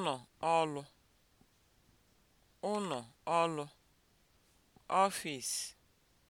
ụnọ ọlụ (ụnọ ọlụ), ọfịs